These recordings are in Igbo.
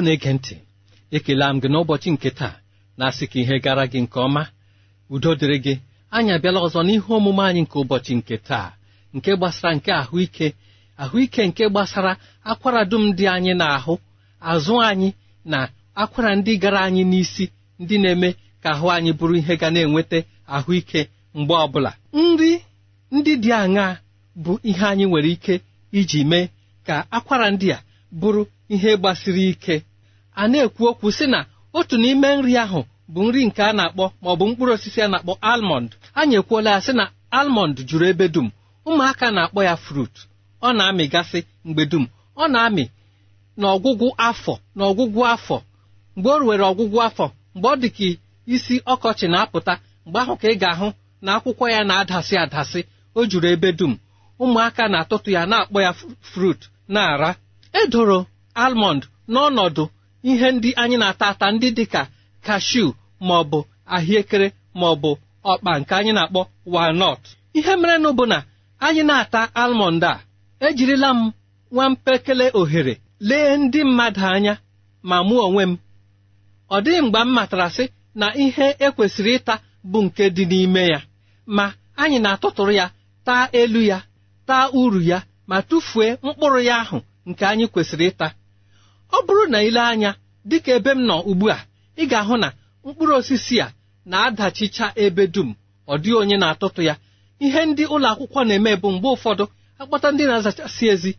ọ na-ege ntị ekela m gị n'ụbọchị nke taa na-asị ka ihe gara gị nke ọma udo dịrị gị anyị abịala ọzọ n'ihe omume anyị nke ụbọchị nke taa nke gbasara nke ahụike ahụike nke gbasara akwara dum dị anyị na-ahụ azụ anyị na akwara ndị gara anyị n'isi ndị na-eme ka ahụ anyị bụrụ ihe ga na-enweta ahụike mgbe ọbụla nri ndị dị aṅa bụ ihe anyị nwere ike iji mee ka akwara ndị a bụrụ ihe gbasiri ike a na-ekwu okwu si na otu n'ime nri ahụ bụ nri nke a na-akpọ ma ọ bụ mkpụrụ osisi a na-akpọ almọnd anyị ekwuola ya sị na almọnd juru ebe dum ụmụaka na-akpọ ya frut ọ na-amịgasị mgbe dum ọ na-amị n'ọgwụgwụ afọ n'ọgwụgwụ afọ mgbe o ruwere ọgwụgwụ afọ mgbe ọ dị isi ọkọchị na-apụta mgbe ahụ ka ị ga-ahụ na akwụkwọ ya na-adasị adasị o juru ebe dum ụmụaka na-atụtụ ya na-akpọ ya frut na-ara edoro almọnd n'ọnọdụ ihe ndị anyị na-ata ata ndị dịka kashu ma ọ bụ ahịekere ma ọ bụ ọkpa nke anyị na-akpọ walnut ihe mere na bụ na anyị na-ata almọnd a ejirila m nwa mpekele ohere lee ndị mmadụ anya ma mụ onwe m ọ dịghị mgbe m matara sị na ihe ekwesịrị ịta bụ nke dị n'ime ya ma anyị na-atụtụrụ ya taa elu ya taa uru ya ma tụfuo mkpụrụ ya ahụ nke anyị kwesịrị ịta ọ bụrụ na ile anya dịka ebe m nọ ugbu a ị ga-ahụ na mkpụrụ osisi a na-adachicha ebe dum ọ dịghị onye na-atụtụ ya ihe ndị ụlọ akwụkwọ na-eme bụ mgbe ụfọdụ akpata ndị na-azachasị ezi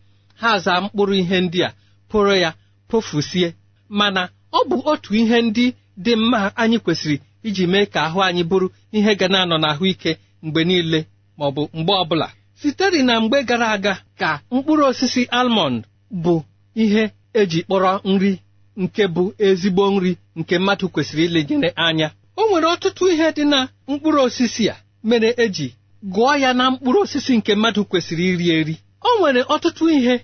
ha zaa mkpụrụ ihe ndị a pụrụ ya pofusie mana ọ bụ otu ihe ndị dị mma anyị kwesịrị iji mee ka ahụ anyị bụrụ ihe ga na-anọ n'ahụike mgbe niile ma ọ bụ mgbe ọbụla sitere na mgbe gara aga ka mkpụrụ osisi almond bụ ihe eji kpọrọ nri nke bụ ezigbo nri nke mmadụ kwesịrị ilenyere anya o nwere ọtụtụ ihe dị na mkpụrụ osisi a mere eji gụọ ya na mkpụrụ osisi nke mmadụ kwesịrị iri eri o nwere ọtụtụ ihe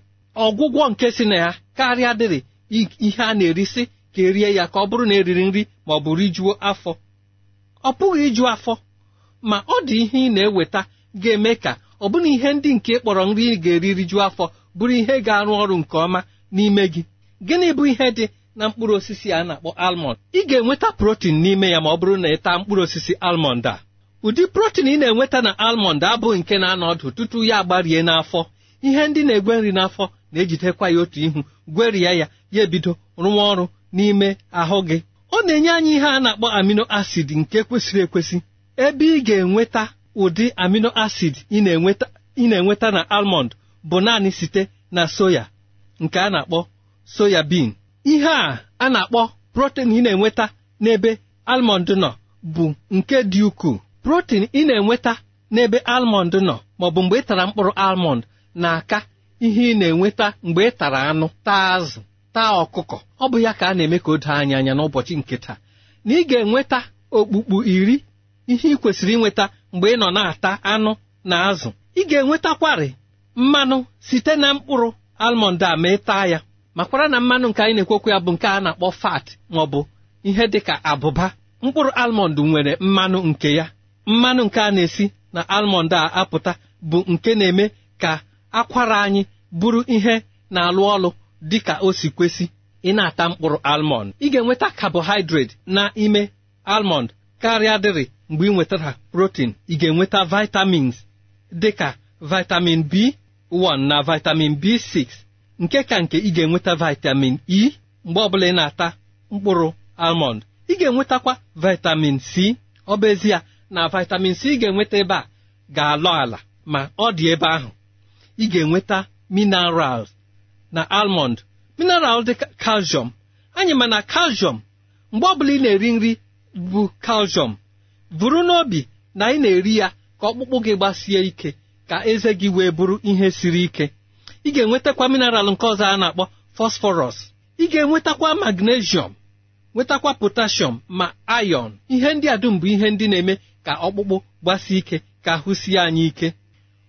ọgwụgwọ nke si na ya karịa dịrị ihe a na-erisi ka erie ya ka ọ bụrụ na eriri nri ma ọ bụ rijuo afọ ọ pụghị iju afọ ma ọ dị ihe ị na-eweta ga-eme ka ọbụna ihe ndị nke kpọrọ nri ị ga-eri rijuo afọ bụrụ ihe ga-arụ ọrụ nke ọma n'ime gị gịnị bụ ihe dị na mkpụrụ osisi a na-akpọ almọnd ị ga-enweta protin n'ime ya ma ọ bụrụ na ị taa mkpụrụ osisi almọnd a ụdị protin ị na-enweta na almọnd abụghị nke na-anọ ọdụ tutu ya agbarie n'afọ ihe ndị na-egwe nri n'afọ na-ejidekwa ya otu ihu gwerie ya ya ebido rụwa ọrụ n'ime ahụ gị ọ na-enye anyị ihe a na-akpọ amino acid nke kwesịrị ekwesị ebe ị ga-enweta ụdị amino acid ị na-enweta na almọnd bụ naanị site na soya nke a na-akpọ soya ihe a a na-akpọ protein ị na-enweta n'ebe almọnd nọ bụ nke dị ukwuu protein ị na-enweta n'ebe almọnd nọ maọbụ mgbe ị tara mkpụrụ almond na-aka ihe ị na-enweta mgbe ị tara anụ taa azụ taa ọkụkọ ọ bụ ya ka a na-eme ka o doo anya anya n'ụbọchị nke taa na ị ga-enweta okpukpu iri ihe ị kwesịrị inweta mgbe ị nọ na-ata anụ na azụ ị ga-enwetakwarị mmanụ site na mkpụrụ almọnd a ma ịta ya makwara na mmanụ nke anyị na-ekwekwu ya bụ nke a na-akpọ fat ma ọ bụ ihe dị ka abụba mkpụrụ almọnd nwere mmanụ nke ya mmanụ nke a na-esi na almọnd a apụta bụ nke na-eme ka akwara anyị bụrụ ihe na-alụ ọlụ dị ka o si kwesị ị na-ata mkpụrụ almọnd ị ga-enweta carbohydrate na ime almọnd karịa dịrị mgbe ị nwetara protein ị ga-enweta vitamins dị ka vitamin B 1 na vitamin b6 nke ka nke ị ga-enweta vitamin e mgbe ọbụla ị na-ata mkpụrụ almond ị ga-enwetakwa vitamin c ọ bụ ezie na vitamin c ị ga-enweta ebe a ga-alọ ala ma ọ dị ebe ahụ ị ga-enweta mineral na almond mineral dị calcium anyị ma na calcium mgbe ọbụla ị na-eri nri bụ calcium vụrụ n'obi na ị na-eri ya ka ọkpụkpụ gị gbasie ike ka eze gị wee bụrụ ihe siri ike ị ga-enwetakwa mineral nke ọzọ a na-akpọ fosforọs ị ga-enwetakwa magnesium nwetakwa potashọm ma ayọn ihe ndị a dum bụ ihe ndị na-eme ka ọkpụkpụ gbasie ike ka ahụ sie anyị ike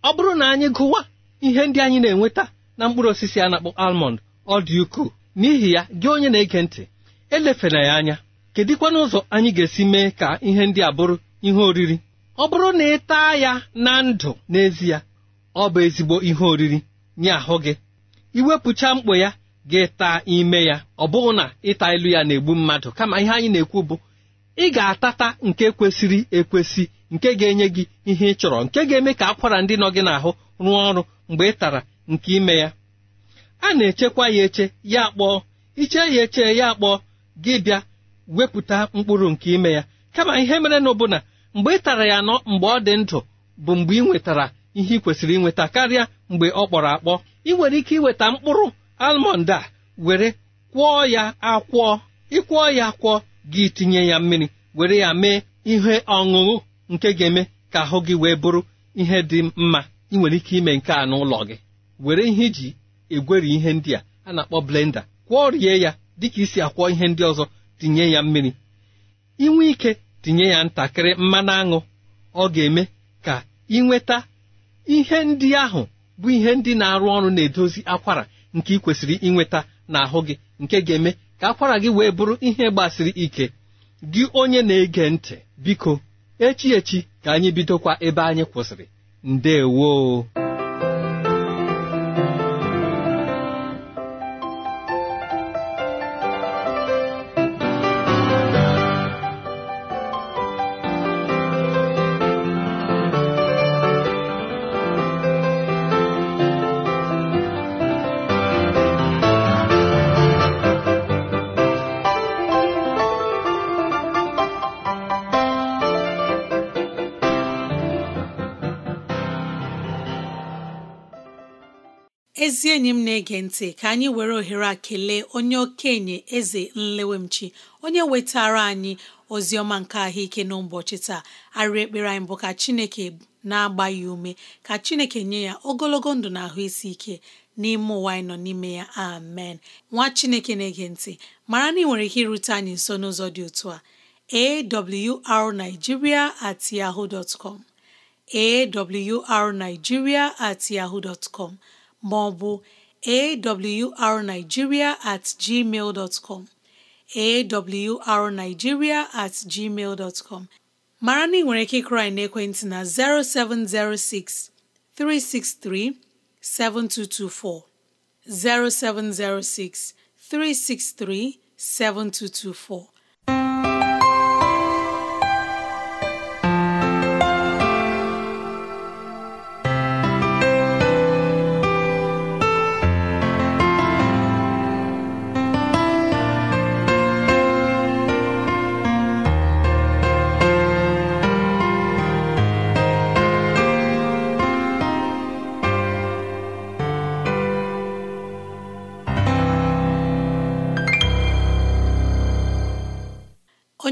ọ bụrụ na anyị gụwa ihe ndị anyị na-enweta na mkpụrụ osisi a na-akpọ almond ọ dị ukwuu n'ihi ya gị onye na-ege ntị elefela ya anya kedịkwa ụzọ anyị ga-esi mee ka ihe ndị a bụrụ ihe oriri ọ bụrụ na ị taa ya na ndụ n'ezie ọ bụ ezigbo ihe oriri nye ahụ gị iwepụcha mkpo ya gị taa ime ya ọ bụghị na ịta ilu ya na-egbu mmadụ kama ihe anyị na-ekwu bụ ị ga-atata nke kwesịrị ekwesị nke ga-enye gị ihe ị chọrọ nke ga-eme ka akwara ndị nọ gị n'ahụ rụọ ọrụ mgbe ị tara nke ime ya a na-echekwa ya eche ya akpọọ iche ya eche ya akpọọ gị bịa wepụta mkpụrụ nke ime ya kama ihe mere na ụbụna. mgbe ị tara ya nọ mgbe ọ dị ndụ bụ mgbe ị nwetara ihe ị kwesịrị inweta karịa mgbe ọ kpọrọ akpọ ị nwere ike iweta mkpụrụ almọnd a were kwọọ ya akwọ ịkwụọ ya akwọ gị tinye ya mmiri were ya mee ihe ọṅụṅụ nke ga-eme ka ahụ gị wee bụrụ ihe dị mma ị nwere ike ime nke a n'ụlọ gị were ihe iji egweri ihe ndị a a na-akpọ blenda rie ya dịka isi akwọ ihe ndị ọzọ tinye ya mmiri inwe ike tinye ya ntakịrị mmanụ aṅụ ọ ga-eme ka ịnweta ihe ndị ahụ bụ ihe ndị na-arụ ọrụ na-edozi akwara nke ị kwesịrị ịnweta n'ahụ gị nke ga-eme ka akwara gị wee bụrụ ihe gbasiri ike gị onye na-ege ntị biko echi echi ka anyị bidokwa ebe anyị kwụsịrị ndewo ezi enyi m na-ege ntị ka anyị were ohere a kelee onye okenye eze nlewemchi onye wetara anyị ozi ọma nke ahụike n'ụbọchị taa arịrị ekpere anyị bụ ka chineke na-agba ya ume ka chineke nye ya ogologo ndụ na ahụ isi ike n'ime ụwa anyị nọ n'ime ya amen nwa chineke na-ege ntị mara na ị nwere ike irute anyị nso n'ụzọ dị otu a awrnigeria at at ma ọ bụ awrnigeria at gmail dot com awrnigeria at gmail dot com mara na ị nwere ike ịkụrụ na 0706 363 7224 0706 363 7224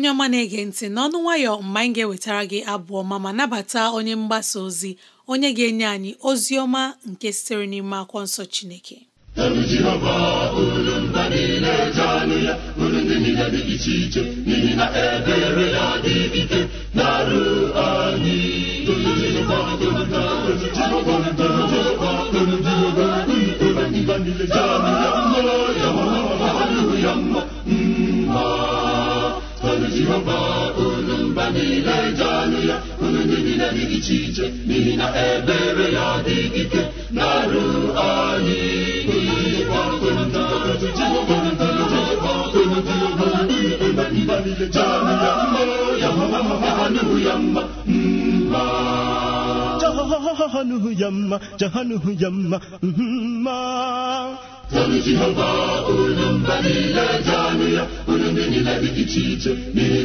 onye ọma na-ege ntị n'ọnụ nwayọọ mgbe anyị ga-ewetara gị abụọ ma ma nabata onye mgbasa ozi onye ga-enye anyị ozi ọma nke sitere n'ime akwọ nsọ chineke jehova unu mba niile ji ya unu ndị niile dị iche iche n'ihi na ebere ya dị ike na-arụ anyị jehova mma jahanuhu yamma jahanuhu mma Tolu Jehova unu mba niile dị ya unu ndị niile dị iche iche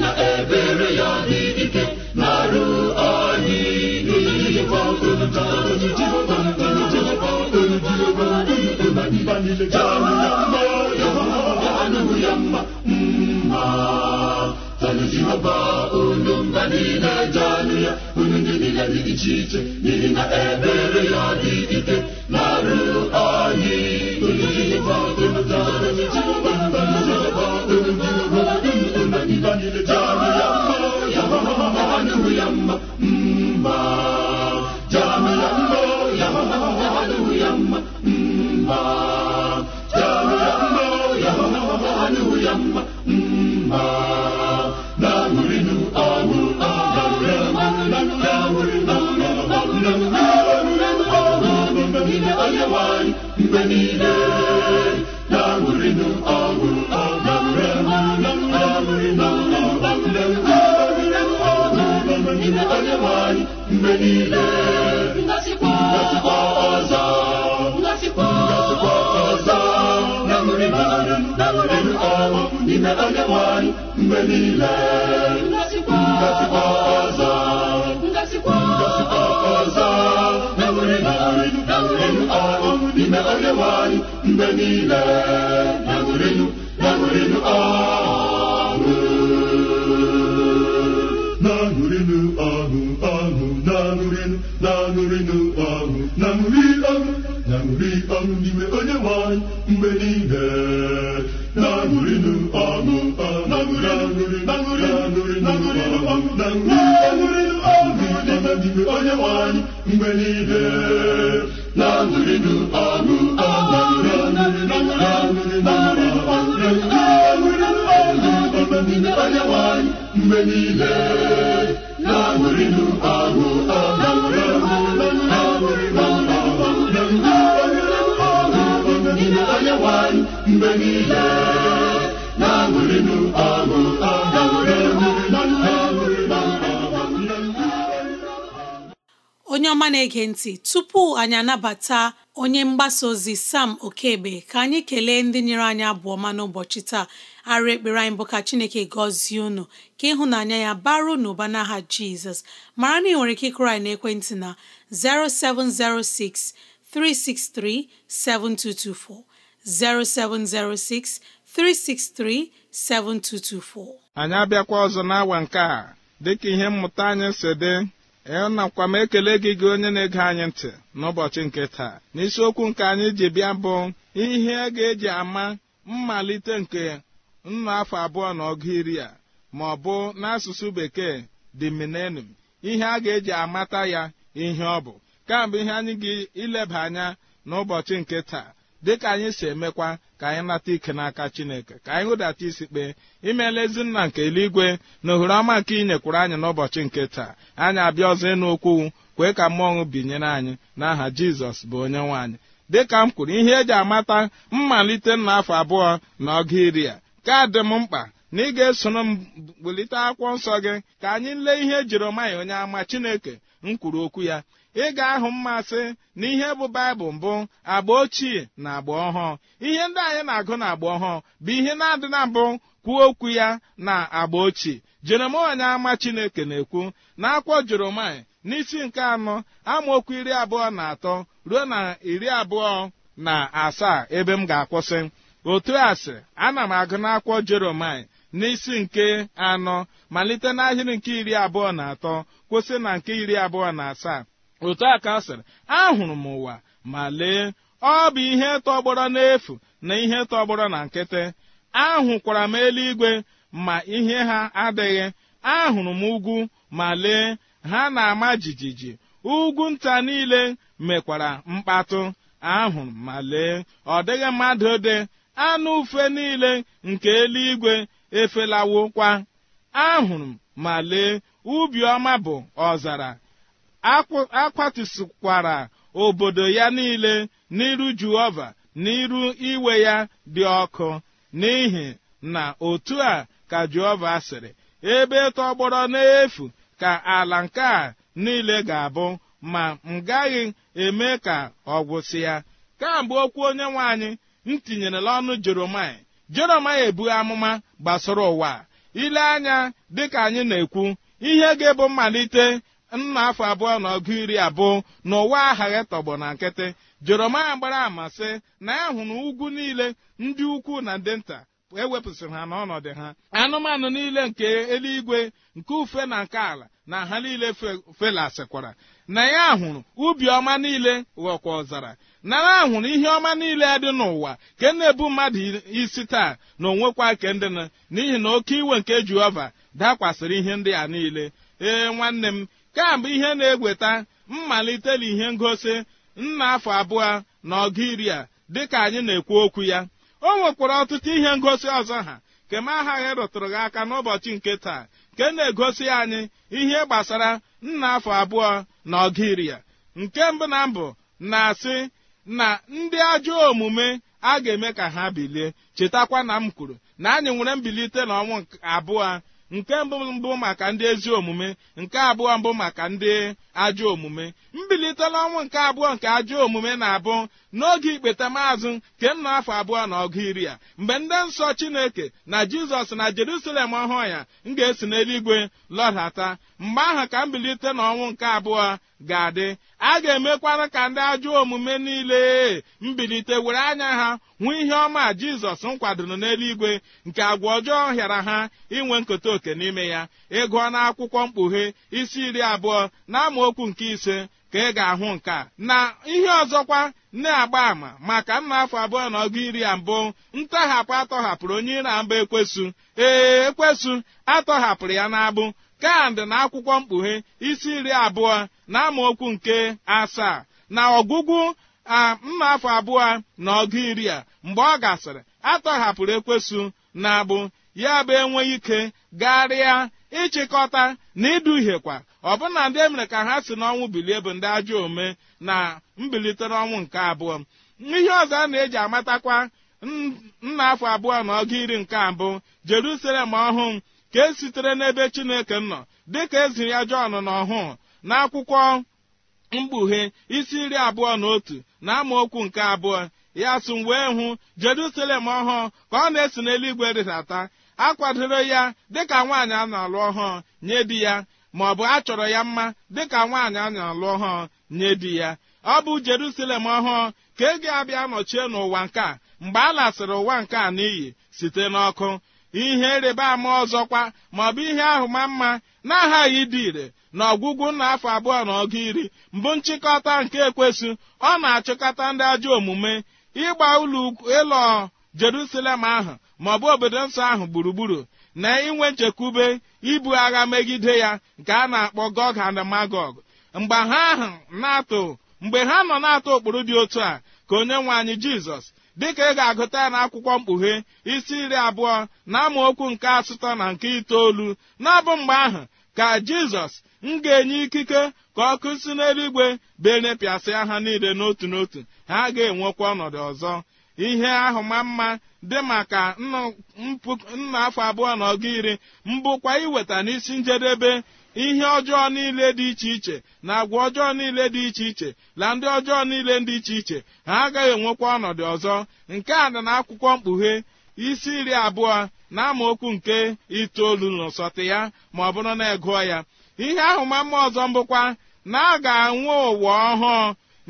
na ebere ya dị ike na anyị anụ ya ndị iche iche na ebere ya dị ike na-arụ anyị mgbe niile niile ngasikwa ọzọ ngasikwa ọzọ na ṅụrị mmanụ na ṅụrị ọṅụ n'ime onye na-ege ntị tupu anyị anabata onye mgbasa ozi Sam Okebe ka anyị kelee ndị nyere anyị abụọ ma n'ụbọchị taa arụ ekpere anyị bụ ka Chineke gọzie unu ka ịhụnanya ya baro n'ụba n'aha Jizọs mara na ị nwere ike ịkụrụ anyị n'ekwentị na 0706 363 7224 Anyị abịakwa ọzọ n'awa nke a dịka ihe mmụta anyị si dị enakwa m ekele gị gị onye na-ege anyị ntị n'ụbọchị nke taa n'isiokwu nke anyị ji bịa bụ ihe ga-eji ama mmalite nke nnụ afọ abụọ na ọgụ iri a ma ọ bụ n'asụsụ bekee dị minenum ihe a ga-eji amata ya ihe ọ bụ kambụ ihe anyị gị ileba anya n'ụbọchị nke taa dịka anyị si emekwa ka anyị nata ike n'aka chineke ka anyị hụdata isi kpee imeela ezinna nna nke eluigwe na ohere ọma nke ị nyekwuru anyị n'ụbọchị nke taa anyị abịa ọzọ ịnụ okwu kwee ka mmọnwụ binyere anyị n'aha jizọs bụ onye nwaanyị dịka m kwuru ihe eji amata mmalite na afọ abụọ na ọgụ iri a ka dị m mkpa na ị ga-esoro m bulite akwụkwọ nsọ gị ka anyị lee ihe Jeremaya onye ama Chineke m kwuru okwu ya ị ga-ahụ mmasị na ihe bụ baịbụl mbụ agba ochie na agba ọhụụ ihe ndị anyị na-agụ na agba ọhụụ bụ ihe na-adị na mbụ kwuo okwu ya na agba ochie jeremaya ama chineke na-ekwu na akwọ jeremaya n'isi nke anọ amaokwu iri abụọ na atọ ruo na iri abụọ na asaa ebe m ga-akwụsị otu a sị ana m agụ n'akwọ jeremaya n'isi nke anọ malite n'ahịrị nke iri abụọ na atọ kwụsị na nke iri abụọ na asaa otu a ka ọ sịrị ahụrụ m ụwa ma lee ọ bụ ihe tọgbọrọ n'efu na ihe tọgbọrọ na nkịtị ahụkwara m eluigwe ma ihe ha adịghị ahụrụ m ugwu ma lee ha na-ama jijiji ugwu nta niile mekwara mkpatụ ahụrụ ma lee ọ dịghị mmadụ dị anụ ufe niile nke eluigwe efelawokwa ahụrụ ma lee ubi ọma bụ ọzara akwatusikwara obodo ya niile n'iru jehova n'iru iwe ya dị ọkụ n'ihi na otu a ka jehova sịrị ebe tọgbọrọ n'efu ka ala nke a niile ga-abụ ma m gaghị eme ka ọ gwụsị ya kamgbe okwu onye nwe anyị m tinyere ọnụ jeromai jona ebu amụma gbasara ụwa ile anya dịka anyị na-ekwu ihe ga-ebu mmalite nna afọ abụọ na ọgụ iri abụọ na ụwa aghaghị tọgbọ na nkịtị jeromaya gbara amasị na ya hụ ugwu niile ndị ukwu na ndị nta ewepụsịrị ha n'ọnọdụ ha anụmanụ niile nke eluigwe nke ufe na nke ala na ha niile felasịkwara na ya hụrụ ubi ọma niile ghọkwa ọzara na ya hụrụ ihe ọma niile dị n'ụwa ke na-ebu mmadụ isi taa na onwekwa kendịna n'ihi na oke iwe nke jehova dakwasịrị ihe ndị a niile ee nwanne m kamgbe ihe na-egweta mmalite na ihe ngosi nna afọ abụọ na ọgụ iri a dịka anyị na-ekwu okwu ya o nwekwara ọtụtụ ihe ngosi ọzọ ha kema aghaghị rụtụrụ gị aka n'ụbọchị nke taa nke na-egosi anyị ihe gbasara nna afọ abụọ na ọgiria nke mbụ na mbụ na-asị na ndị ajọ omume a ga-eme ka ha bilie chetakwa na m kwuru na anyị nwere mbilite na abụọ nke mbụ mbụ maka ndị ezi omume nke abụọ mbụ maka ndị ajọ omume mbili erutela ọnwụ nke abụọ nke ajọ omume na-abụ n'oge ikpeta maazụ kemna afọ abụọ na ọgụ iri a mgbe ndị nsọ chineke na jizọs na jerusalem ọhụụ ya m ga-esi n'eluigwe lọdata mgbe ahụ ka mbilite n'ọnwụ nke abụọ ga-adị a ga-emekwara ka ndị ajọ omume niile mbilite were anya ha nwee ihe ọma jizọs nkwadoro n'eluigwe nke agwa ọjọọ hịara ha inwe nkote oke n'ime ya ịgụọ na akwụkwọ mkpughe isi iri abụọ na nke ise ka ị e ga-ahụ nke a na ihe ọzọkwa na-agba àmà maka nna afọ abụọ na ọgụ iri a mbụ ntọhapụ atọhapụrụ onye ire a mbụ ekwesu ee ekwesu atọhapụrụ ya n'abụ kandị na akwụkwọ mkpughe isi iri abụọ na okwu nke asaa na ọgwụgwụ a mma afọ abụọ na ọgụ iri a mgbe ọ gasịrị atọhapụrụ ekwesu na abụ ya bụ enweghị ike garịa ịchịkọta na iduhiekwa ọbụna ndị emere ka ha si n'ọnwụ bilie bụ ndị ajọ ome na mbilite n'ọnwụ nke abụọ ihe ọzọ a na-eji amatakwa nna afọ abụọ na ọgụ iri nke abụ jerusalem ọhụụ ka e sitere n'ebe chineke nọ dịka ezi ya jọn na ọhụụ na akwụkwọ mkpughe isi iri abụọ na otu na amaokwu nke abụọ ya sụ wee hụ jeruselem ọhụụ ka ọ na-esi n'eluigwe rịdata akwadoro ya dịka nwaanyị a na-alụ ọhụụ nye di ya ma ọ bụ a chọrọ ya mma dịka nwaanyị a na-alụ ọhụụ nye di ya ọ bụ jerusalem ọhụụ ka e ga-abịa nọchie n'ụwa nke a mgbe a lasịrị ụwa nke a n'iyi site n'ọkụ ihe rịba ama ọzọkwa ma ọ bụ ihe ahụ ma mma na-aghaghị ịdị ire na ọgwụgwụ nna afọ abụọ na ọgụ iri mbụ nchịkọta nke ekwesị ọ na-achịkọta ndị ajọ omume ịgba ụlọ ịlọ Jerusalem ahụ ma ọ bụ obodo nsọ ahụ gburugburu na inwe nchekwube ibu agha megide ya nke a na-akpọ gog and magog mgbe ha ahụ na-atụ mgbe ha nọ na-atụ ụkpụrụ dị otu a ka onye nwe anyị jizọs dịka ị ga-agụta ya n'akwụkwọ mkpughe isi iri abụọ na okwu nke asụtọ na nke itoolu na-abụ mgbe ahụ ka jizọs m ga-enye ikike ka ọkụ si n'eluigwe benepịasịa ha niile n'otu n'otu ha ga-enwekwa ọnọdụ ọzọ ihe ahụ ma mma dị maka nna afọ abụọ na ọga iri mbụkwa iweta n'isi njedebe ihe ọjọọ niile dị iche iche na agwa ọjọọ niile dị iche iche na ndị ọjọọ niile dị iche iche ha agaghị enwekwa ọnọdụ ọzọ nke a dị akwụkwọ mkpughe isi iri abụọ na amaokwu nke itoolu n'ụsọtụ ya ma ọ bụrụ na egụọ ya ihe ahụ ma mma ọzọ mbụkwa na a ga-anwụ ụwa ọhụụ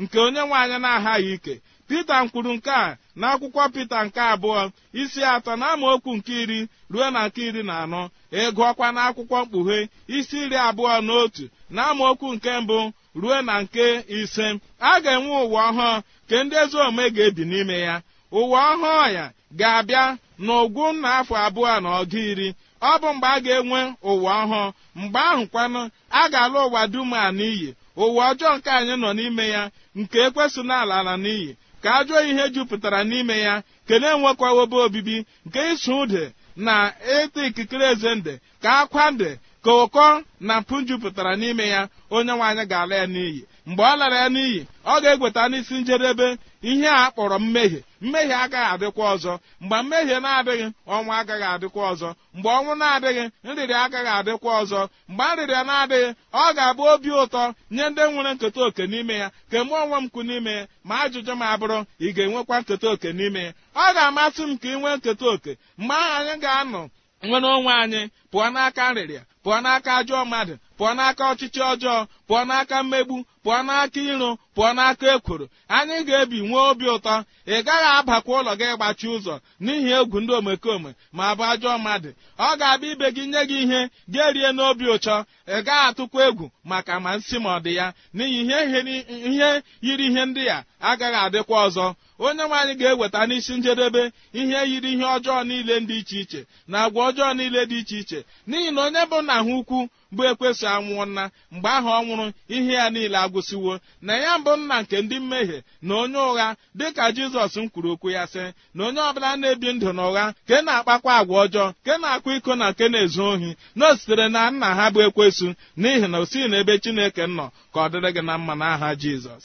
nke onye nwaanyị na-aghaghị ike pita kwuru nke a na akwụkwọ pita nke abụọ isi atọ na amaokwu nke iri ruo na nke iri na anọ ịgụọkwa e na akwụkwọ mkpughe isi iri abụọ na otu na amaokwu nke mbụ ruo na nke ise a ga-enwe ụwa ọhụụ nke ndị ezi omume ga-ebi n'ime ya ụwa ọhụụ ya ga-abịa n'ụgwụ na afọ abụọ na ọgụ iri ọ bụ mgbe a ga-enwe ụwa ọhụụ mgbe ahụ kwanụ a ga-alụ ụwa dum a n'iyi ụwa ọjọọ nke anyị nọ n'ime ya nke ekwesị n'ala ala n'iyi ka ajọ ihe jupụtara n'ime ya kelee nwekwawobe obibi nke ịsụ ude na ịta ikikere eze nde ka akwa nde ka ụkọ na mpụ jupụtara n'ime ya onye nwaanyị ga-ala ya n'iyi mgbe ọ lara ya n'iyi ọ ga-egweta n'isi njedebe ihe a kpọrọ mmehie mmehie agaghị adịkwa ọzọ mgbe mmehie na-adịghị ọnwa agaghị adịkwa ọzọ mgbe ọnwụ na-adịghị nrịrị agaghị adịkwa ọzọ mgbe nrịrịa na-adịghị ọ ga-abụ obi ụtọ nye ndị nwere nketa oke n'ime ya ka eme onwe m kwu n'ime ya ma ajụjụ m abụrụ ị ga-enwekwa nketa oke n'ime ya ọ ga-amasị m ka ị nwee nketa oke mgbe ahụ anyị ga-anọ nwere onwe anyị pụọ n'aka nrịrịa pụọ n'aka ajọ mmadụ pụọ n'aka ọchịchị ọjọọ pụọ n'aka mmegbu pụọ n'aka iro pụọ n'aka ekworo anyị ga-ebi nwee obi ụtọ ị gaghị abakwa ụlọ gị gbachi ụzọ n'ihi egwu ndị omekome ma bụ ajọ mmadụ ọ ga-abịa ibe gị nye gị ihe gị erie n'obi ụchọ ị gaghị atụkwa egwu maka ma nsị ma ọ dị ya n'ihi ihe yiri ihe ndị a agaghị adịkwa ọzọ onye nwe anyị ga-eweta n'isi njedebe ihe yiri ihe ọjọọ niile dị iche iche na agwa ọjọọ niile dị iche iche n'ihi na onye bụ nna ha ukwu bụ ekwesị anwụọ nna mgbe ahụ ọ nwụrụ ihe ya niile agwụsịwo na ya mbụ nna nke ndị mmehie na onye ụgha dịka jizọs m kwuru okwu ya sị na onye ọbụla na-ebi ndụ na ụgha ke na-akpakwa agwa ọjọọ ke na-akwa iko na nke na-ezu ohi na o sitere na nna ha bụ ekwesụ n'ihi na o sighị n'ebe chineke nọ ka ọ dịrị gị na mma n'aha jizọs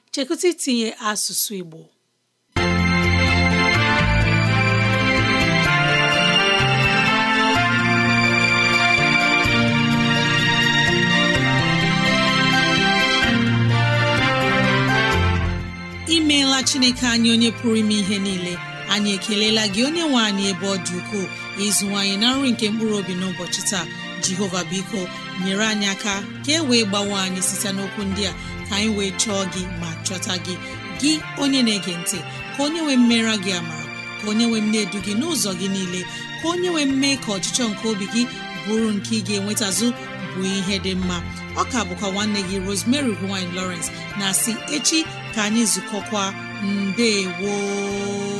chekụta itinye asụsụ Igbo imeela Chineke anyị onye pụrụ ime ihe niile anyị ekelela gị onye nwe anyị ebe ọ dị ukwuu ukoo ịzụwanyị na nri nke mkpụrụ obi n'ụbọchị taa Jehova biko nyere anyị aka ka e wee gbawe anyị site n'okwu ndị a ka anyị wee chọọ gị ma chọta gị gị onye na-ege ntị ka onye nwee mmera gị ama ka onye nwee mne edu gị n'ụzọ gị niile ka onye nwee mme ka ọchịchọ nke obi gị bụrụ nke ị ga-enwetazụ bụ ihe dị mma ọ ọka bụkwa nwanne gị Rosemary gine Lawrence na si echi ka anyị zukọkwa mbe woo